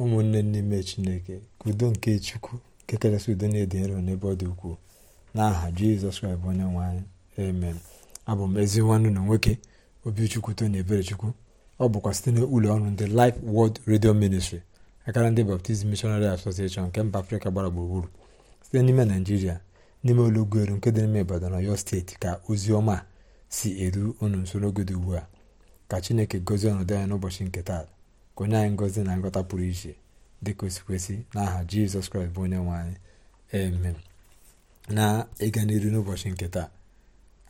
ụmụnne n'ime chineke ka udo nke chukwu nke kachasị udo na-ede nro n'ebe ọ dị ukwuu n'aha jizọs kraịst onye nwe emen amen abụ m ezi nwanne na nwoke obichukwu tony eberechukwu ọ bụkwa site n'ụlọ ọnụ ndị Life World redio ministri akara ndị Baptist Missionary Association nke mba afrịka gbara gburugburu site n'ime naijiria n'ime ụlọgoelu nke dị n'ime na ọyọ steeti ka ozi ọma si eru unu nso n'oge dị ugbu a ka chineke gozie ọnọdụ anya n'ụbọchị nke taa onye anyị ngozi na nghọta pụrụ iche dịka kwesị osikwesị n'aha jizọs kraịst bụ onye nwe anyị amen na ịga n'iru n'ụbọchị nke taa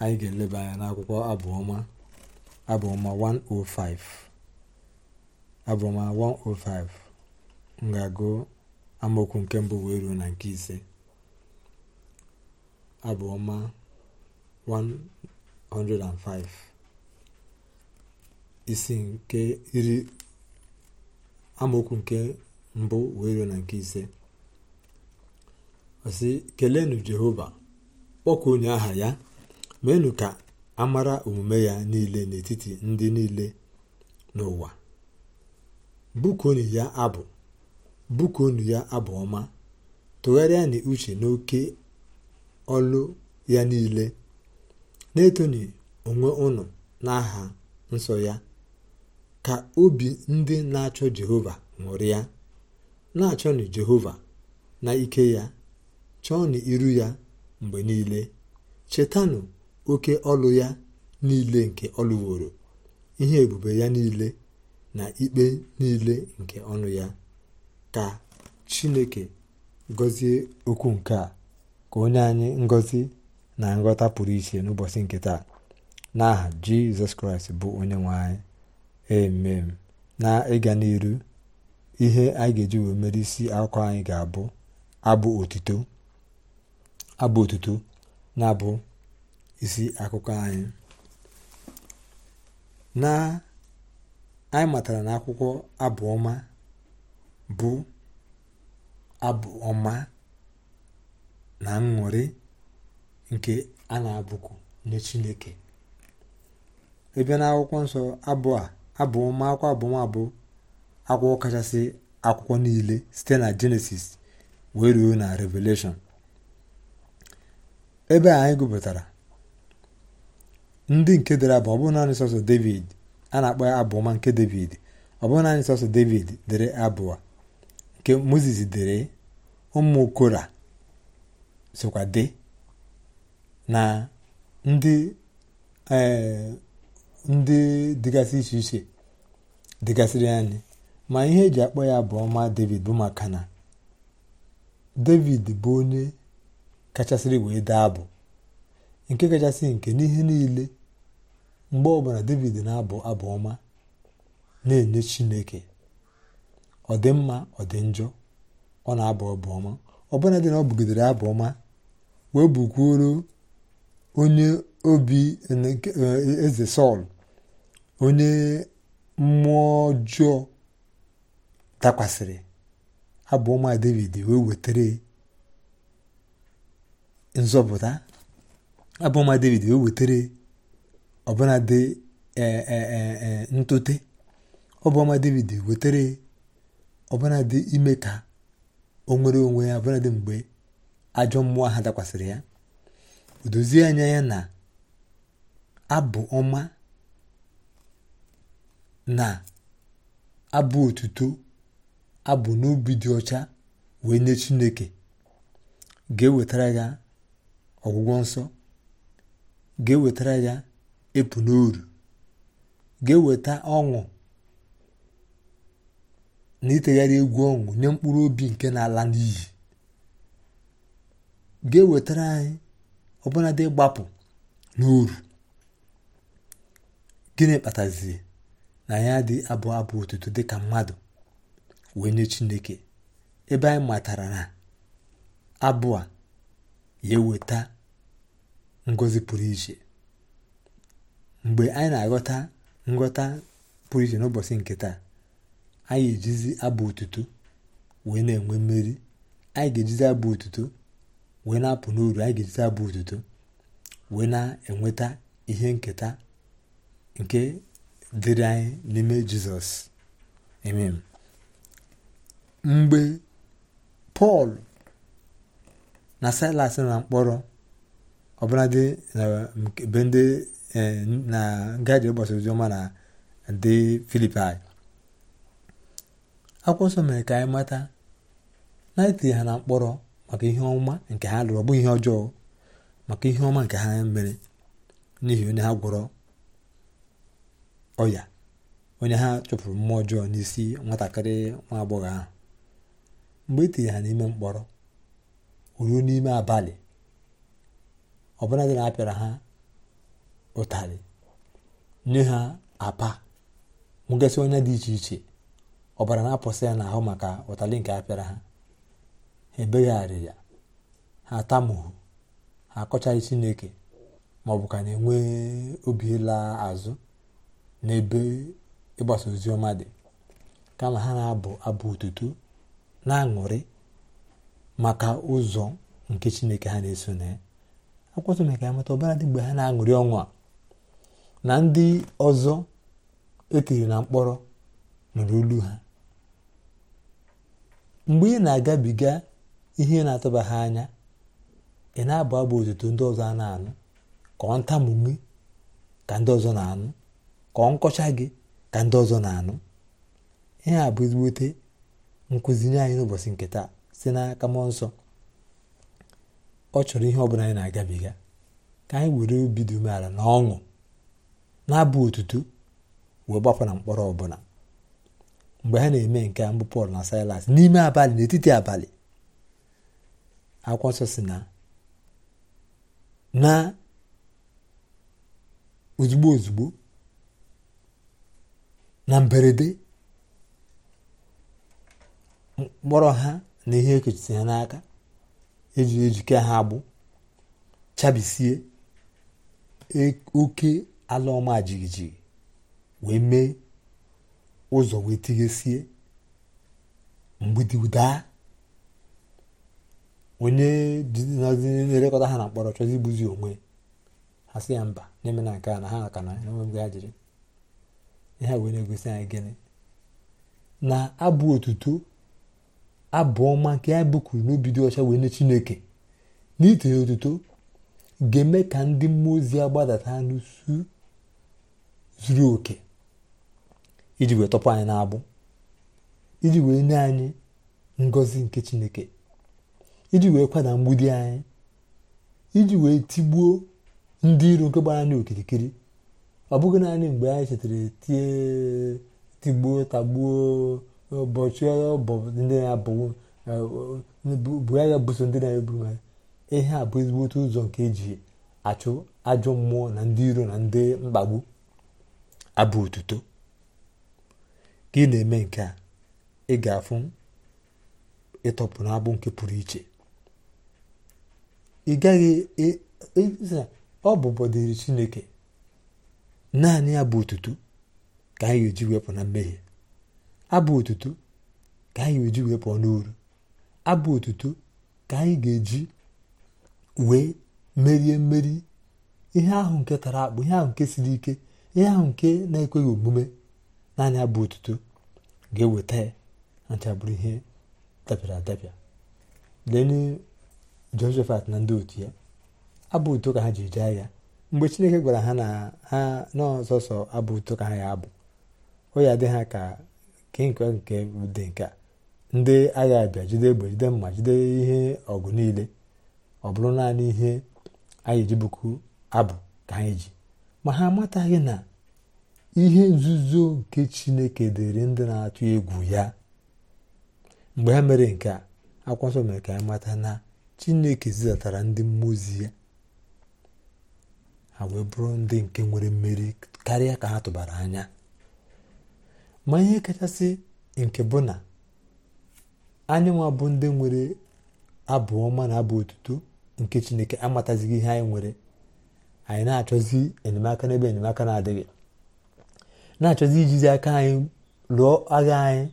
anyị ga-eleba anya n'akwụkwọ abụọma abụọma 105 abụọma 105 m ga-agụ amaokwu nke mbụ wee ruo na nke ise abụọma 105 isi nke iri amaokwu nke mbụ wee ruo na nke ise ọsị kelenu jehova onye aha ya meenụ ka amara omume ya niile n'etiti ndị niile n'ụwa bukonu ya abụ bukonu ya abụ ọma tụgharịa na uche n'oke ọlụ ya niile na-etoni onwe unu n'aha nsọ ya ka obi ndị na-achọ jehova ya na-achọnụ jehova na ike ya chọọnụ iru ya mgbe niile chetanụ oke ọlụ ya niile nke ọlụworo ihe ebube ya niile na ikpe niile nke ọnụ ya ka chineke gọzie okwu nke a ka onye anyị ngọzi na nghọta pụrụ iche n'ụbọchị nke taa n'aha jizọs kraịst bụ onye nwe anyị emem na ịga n'iru ihe anyị ga-eji wee mere isi akụkọ anyị ga-abụ abụ otuto abụ otuto na-abụ isi akụkọ anyị na anyị matara na akwụkwọ abụ bụ abụ ọma na ṅụrị nke a na-abụku nye Chineke ebe na akwụkwọ nsọ abụ a abụọma akwụkwọ akwụkwọ kachasị akwụkwọ niile site na jenesis wee ruo na revelation ebe anyị gụpụtara ndị nke dere abụ ọ naanị sọsọ david a na-akpọ ya abụọma nke david ọ bụrụ naanị sọsọ david dere abụọ nke moses dere ụmụ kora sokwa na ndị ee eh, ndị dịgasị iche iche dịgasịrị anyị ma ihe eji akpọ ya bụ ọma david bụ maka na david bụ onye kachasịrị wee dee abụ nke kachasị nke n'ihe niile mgbe ọbụla david na-abụ abụ ọma na-enye chineke ọ dị mma ọ dị njọ ọ na-abụ abụ ọma ọbụla dị na ọ bụgidere abụ ọma wee bụkwuoro onye obi e, eze sọl onye mmụọ ọjọọ dakwasịrị abụọ ma david wee wetere nzọpụta abụọ ma david wee wetere ọbụna dị e, e, e, ntote ọbụ david wetere ọbụna dị ime ka o nwere onwe ya ọbụna dị mgbe ajọ mmụọ ha dakwasịrị ya odozie dozie anya ya na abụ ọma na abụ otuto abụ n'ubi dị ọcha wee nye chineke ga-ewetara ya ọgwụgwọ nsọ ga-ewetara ya epu n'oru ga-eweta ọṅụ na itegharị egwu ọṅụ nye mkpụrụ obi nke na-ala n'iyi ga-ewetara anyị ọbụnadị ịgbapụ n'oru gịnị kpatazie na ya dị abụ abụ otuto dịka mmadụ wee nye chineke ebe anyị matara na abụ a ya eweta ngozi pụrụ iche mgbe anyị na-aghọta nghọta pụrụ iche n'ụbọchị nke taa anyị ejizi abụ otuto wee na-enwe mmeri anyị ga-ejizi abụ otuto wee na-apụ n'uru anyị ga-ejizi abụ otuto wee na-enweta ihe nketa nke dịrị anyị n'ime jizọs m mgbe pọl na silas na mkpọrọ eh, dị be ndị na ngaji ụbọchị oziọma na ndị filipai akwụkwọ nsọ mere ka anyị mata na itinye ha na mkpọrọ maka ihe ọma nke ha lụrụ ọ ihe ọjọọ maka ihe ọma nke ha mere n'ihi onye ha gwọrọ ọya onye ha chụpụrụ mmụọ ọjọọ n'isi nwatakịrị nwa agbọghọ ahụ mgbe e tinye ha n'ime mkpọrọ ruo n'ime abalị ọbụla dị na apịara ha ụtarị nye ha apa nwegasị onye dị iche iche ọbara na-apụsị ya n'ahụ maka ụtalị nke apịara ha ha ebegharị ya ha atamuhu ha akọchaghị chineke ma ọ bụ ka na-enwe obi laa azụ n'ebe ịgbasa ozi ọma dị kama ha na-abụ abụ otuto na-aṅụrị maka ụzọ nke chineke ha na-eso na ya akwụkwọ nsọ ka mata ọbara dị mgbe ha na-aṅụrị ọnwụ a na ndị ọzọ etiri na mkpọrọ nụrụ olu ha mgbe ị na-agabiga ihe na-atụba ha anya ị na-abụ abụ otuto ndị ọzọ a na-anụ ka ọ ntamume ka ndị ọzọ na-anụ ka ọ nkọcha gị ka ndị ọzọ na-anụ ihe a bụ ezigbote nkụzi nye anyị n'ụbọchị nke taa si n'aka mmụọ nsọ ọ chọrọ ihe ọbụla anyị na-agabiga ka anyị were obi dị umeala na ọṅụ na-abụ otutu wee gbapụ na mkpọrọ ọbụla mgbe ha na-eme nke a mbụ pọl na silas n'ime abalị n'etiti abalị akwụkwọ nsọ si na na ozugbo ozugbo na mberede mkpọrọ ha na ihe ekechisi ha n'aka eji ejike ha agbụ chabisie e, oke ala ọma jijiji wee mee ụzọ wee tighesie mgbidi daa onye na-elekọta ha na mkpọrọ chọzi igbuzi onwe ha si ya mba n'ime na nke a na ha aka na enweghị ajịrị ihe wee na-egosi anyị gịnị na abụ otuto abụ ọma nke ya bụkuru n'obi dị ọcha wee nye chineke na itinye otuto ga-eme ka ndị mmụọ ozi ya gbadata n'usu zuru oke iji wee tọpụ anyị na-abụ iji wee nye anyị ngọzi nke chineke iji wee kwada mgbidi anyị iji wee tigbuo ndị iro nke gbara anyị okirikiri ọ bụghị naanị mgbe anyị chetara tie tigbuo tagbuo ụbọchị ndị na-abụghị ndị na-eburu ha ihe a bụ ụzọ nke eji achụ ajọ mmụọ na ndị iro na ndị mkpagbu abụ otuto ka ị na-eme nke a ị ga-afụ ịtọpụ n'abụ nke pụrụ iche ị gaghị ọ bụ bọdịrị chineke naanị abụ bụ otuto ka anyị ga-eji wepụ na mmehie abụ otuto ka anyị ga-eji wepụ n'uru abụ otuto ka anyị ga-eji wee merie mmeri ihe ahụ nke tara akpụ ihe ahụ nke siri ike ihe ahụ nke na-ekweghị omume naanị abụ otuto ga-eweta ya achabụrụ ihe dabịara adabịa lee jehoshapat na ndị otu ya abụ otuto ka ha ji eje agha mgbe chineke gwara ha na ha n'ọsọsọ abụ ụtọ ka ha ya abụ ọ ya dị ha ka kenke nke dị nke ndị agha abịa jide egbe jide mma jide ihe ọgụ niile ọ bụrụ naanị ihe anyị ejibuku abụ ka anyị ji ma ha amataghị na ihe nzuzo nke chineke dịrị ndị na-atụ egwu ya mgbe ha mere nke a akwụkwọ mere ka anyị mata na chineke zidatara ndị mmụọ ozi ya ha wee bụrụ ndị nke nwere mmeri karịa ka ha tụbara anya ma ihe kachasị nke bụ na anyị nwa bụ ndị nwere abụ ọma na abụ otuto nke chineke amatazighị ihe anyị nwere anyị na-achọzi enyemaka n'ebe enyemaka na-adịghị na-achọzi ijizi aka anyị lụọ agha anyị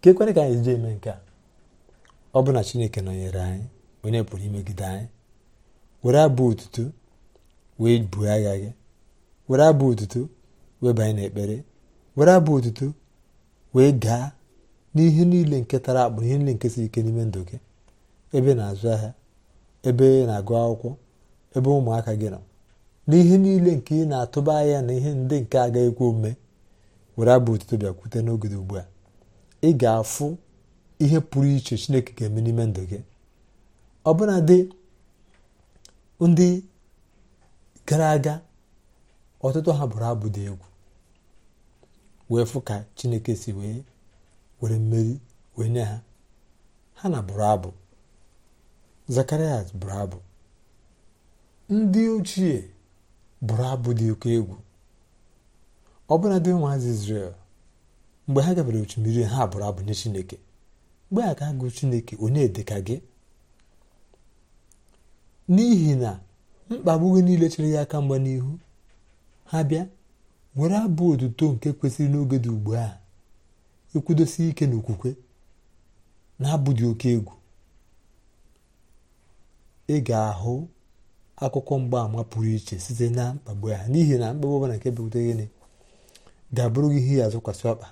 ka ekwere ka anyị ji eme nke a ọ bụ na chineke nọnyere anyị onye pụrụ imegide anyị were abụ otuto wee buo agha gị were abụ otuto wee banye n'ekpere were abụ otuto wee gaa n'ihe niile nke tara akpụ ihe niile nke si ike n'ime ndụ gị ebe na-azụ ahịa ebe na-agụ akwụkwọ ebe ụmụaka gị nọ n'ihe niile nke ị na-atụba ahịa na ihe ndị nke agaghị ekwe ome were abụ otuto bịakwute n'oge ugbu a ị ga-afụ ihe pụrụ iche chineke ga-eme n'ime ndụ gị ọbụna dị ndị gara aga ọtụtụ ha bụrụ abụ dị egwu wee fụ ka chineke si wee were mmeri wee nye ha ha na bụrụ abụ zakarias bụrụ abụ ndị ochie bụrụ abụ dị oke egwu bụla dị ụmụazị israel mgbe ha gabere osimiri ha bụrụ abụ nye chineke mgbe a ka agụ chineke onye dịka gị n'ihi na mkpagbu gị niile chere gị aka mgba n'ihu ha bịa were abụ otuto nke kwesịrị n'oge dị ugbu a ekwudosi ike n'okwukwe na-abụ dị oke egwu ị ga-ahụ akụkọ mgbaàmà pụrụ iche site na mkpagbu ha n'ihi na mkpagbu ọbụla nke bepụta gịnị ga-abụrụ gị ihe ya azụkwasị ọkpa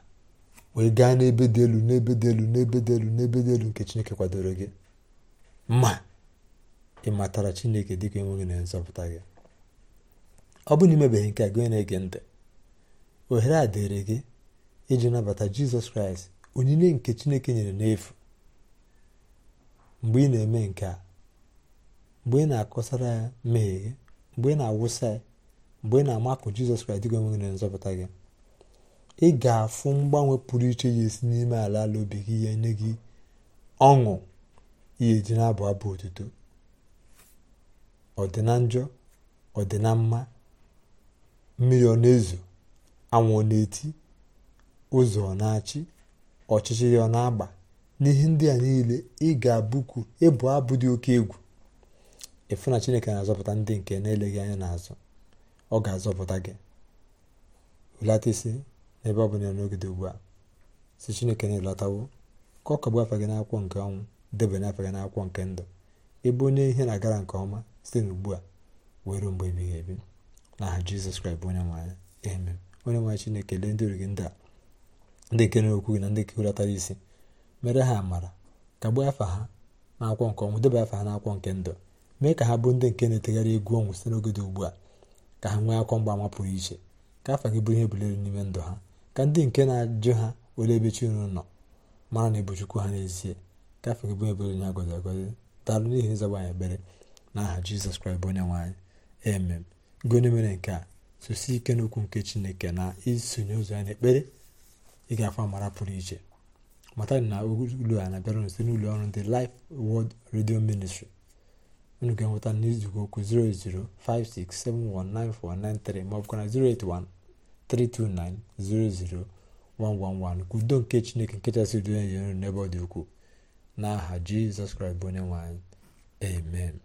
wee gaa n'ebe dị elu n'ebe dị elu n'ebe dị elu n'ebe dị elu nke Chineke kwadoro gị mma. ị matara chineke dịka enweghị na nzọpụta gị ọ bụ na nke gị na-ege ntị ohere a dịrị gị iji nabata jizọs kraịst onyinye nke chineke nyere n'efu mgbe ị na-eme nke a mgbe ị na-akọsara ya mmehie gị mgbe ị na-awụsa ya mgbe ị na-amakụ jizọs kraịst dịka enweghị na nzọpụta gị ị ga-afụ mgbanwe pụrụ iche ya esi n'ime ala ala obi gị ya nye gị ọṅụ ihe ji na-abụ abụ otuto ọ dị na njọ ọ dị na mma mmiri ọ na-ezo anwụ ọ na-eti ụzọ ọ na-achị ọchịchị ya ọ na-agba n'ihe ndị a niile ị ga-abụkwu ịbụ abụ dị oke egwu ịfụ na chineke na-azọpụta ndị nke na-eleghị anya n'azụ ọ ga-azọpụta gị hụlata isi n'ebe ọ bụ n'oge dị ugbu a si chineke na-elọtawo ka ọ kagbu afa gị n'akwụkwọ nke ọnwụ debe n'afa gị n'akwụkwọ nke ndụ ebe onye ihe na-agara nke ọma site n'ugbu a were mgbe ebighị ebi n'aha jizọs kraịst bụ onye nwanyị eme onye nwanyị chineke lee ndị origi ndị a ndị kere okwu gị na ndị kehulatara isi mere ha amara kagbuo afa ha n'akwụkwọ nke ọnwụ deba afa ha akwọ nke ndụ mee ka ha bụrụ ndị nke na-etegharị egwu ọnwụ site n'oge dị ugbu a ka ha nwee akwọ mgba ama pụrụ iche ka afa gị bụrụ ihe bulere n'ime ndụ ha ka ndị nke na-ajụ ha ole ebe chi unu nọ mara na ịbụ ha n'ezie ka afa gị bụrụ ebere onye agọzi agọzi daalụ n'ihi ịzọgba ebere n'aha jizọs kraịst bụ onye nwanyị eme gị onye mere nke a sosi ike n'okwu nke chineke na isonye ụzọ ya n'ekpere ị ga-afọ amara pụrụ iche mata na ụlọ a na-abịara site n'ụlọ ọrụ ndị Life World Radio Ministry unu ga-enweta n'izugo okwu 00567199493 ma ọ bụkwa na 08132900111 ka udo nke chineke nkechasị udo ya nyere n'ebe ọ dị ukwuu n'aha jizọs kraịst bụ onye nwanyị amen